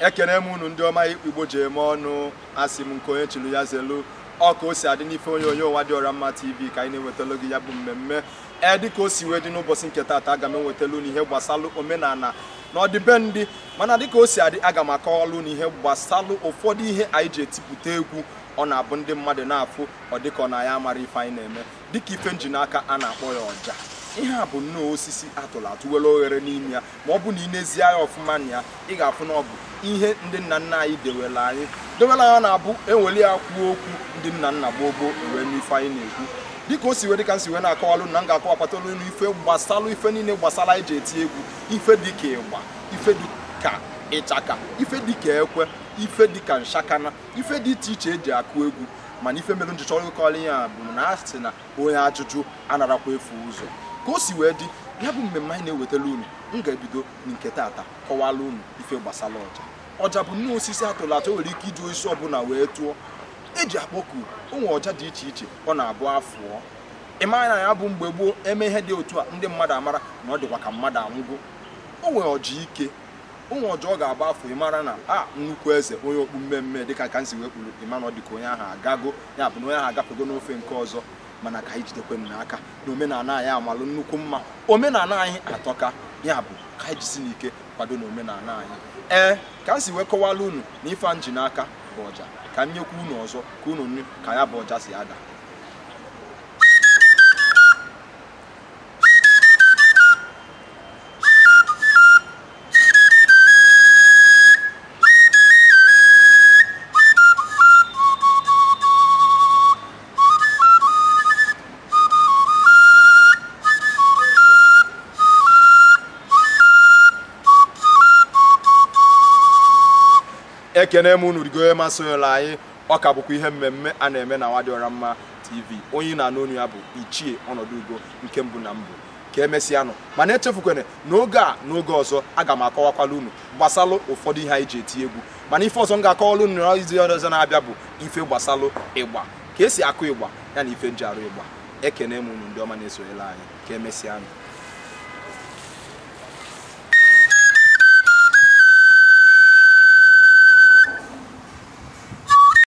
ekene m unu ndị ọma igbo ji eme ọnụ asị m nke onye chiri ya zelu ọ ka o si adị n'ife onye onye ụwa dị ọra mma tv ka anyị na-ewetalo gị ya bụ mmemme ee dịka o si wee dị n'ụbọchị nke taata aga m ewetala unu ihe gbasalụ omenala na ọdịbendị mana dịka o si adị aga m akọwalụ unu ihe gbasalụ ụfọdụ ihe anyị ji etipụta egwu ọ na-abụ ndị mmadụ na-afụ ọ dịka ọ na ya amara ife anyị na-eme dịka ife nji n'aka a na-akpọ ya ọja ihe a bụ nnọọ osisi atụrụ atụ were oghere n'ime ya ma ọ bụ na ị na-ezi anya ọfụma na ya ị ga-afụ na ọ bụ ihe ndị nna nna anyị dewela anyị dewela ya na-abụ eweli ya kwuo okwu ndị nna nna gbogbo wee n'ife anyị na-ekwu dịka o si wee dịka nsi wee na-akọwalụ na m ga-akọwapụtalụ elu ife gbasalụ ife niile gbasara anyị ji eti egwu ife dịka ịgba ife dịka ịchaka ife dịka ekwe ife dịka nshakana ife dị iche iche eji akụ egwu mana ife mere njichọ ịkọrọ ya bụ na a sị na onye ajụjụ anarakwa efu ụzọ ka o si wee dị ya bụ mmemme anyị na-ewetara unu m ga-ebido nke taata kọwala unu ife gbasara ọja ọja bụ nnọọ osisi atụrụ atụ nwere ike iji osisi ọbụla wee tụọ eji akpọku onwe ọja dị iche iche ọ na-abụ afụọ ịma na ya bụ mgbe gboo eme ihe dị otu a ndị mmadụ amara na ọ dịkwa ka mmadụ anwụgo o nwere ọja ike onwe ọja ọ ga-agba afọ ịmara na a ah, nnukwu eze onye okpu mmemme dịka ka nsi wee kwuru ịma na ọ dịka onye ahụ agago ya bụ na onye ahụ agapụgo n'ofe nke ọzọ mana ka anyị jidekwe m n'aka na omenala anyị amalụ nnukwu mma omenala anyị atọka ya bụ ka anyị e jisi n'ike kwado na omenala anyị ee ka m si wee kọwala unu na ife n'aka bụ ọja ka m nyekwa unu ọzọ ka unu nụ ka ya bụ ọja si ada ekene m unu rigo masịla anyị ọ ka bụkwa ihe mmemme a na-eme na Nwadịọra Mma TV onye na-anụ onu ya bụ ichie ọnọdụ ugo nke mbụ na mbụ ka emesịanụ mana echefukwana n'oge a n'oge ọzọ aga m akọwakwala unu gbasalụ ụfọdụ ihe anyị ji eti egwu mana ife ọzọ m ga-akọwala unu n'izu ọzọ na-abịa bụ ife gbasalụ ịgba ka esi akụ ịgba ya na ife njiarụ ịgba ekene m unu ndị ọma na-esonyela anyị ka emesịanụ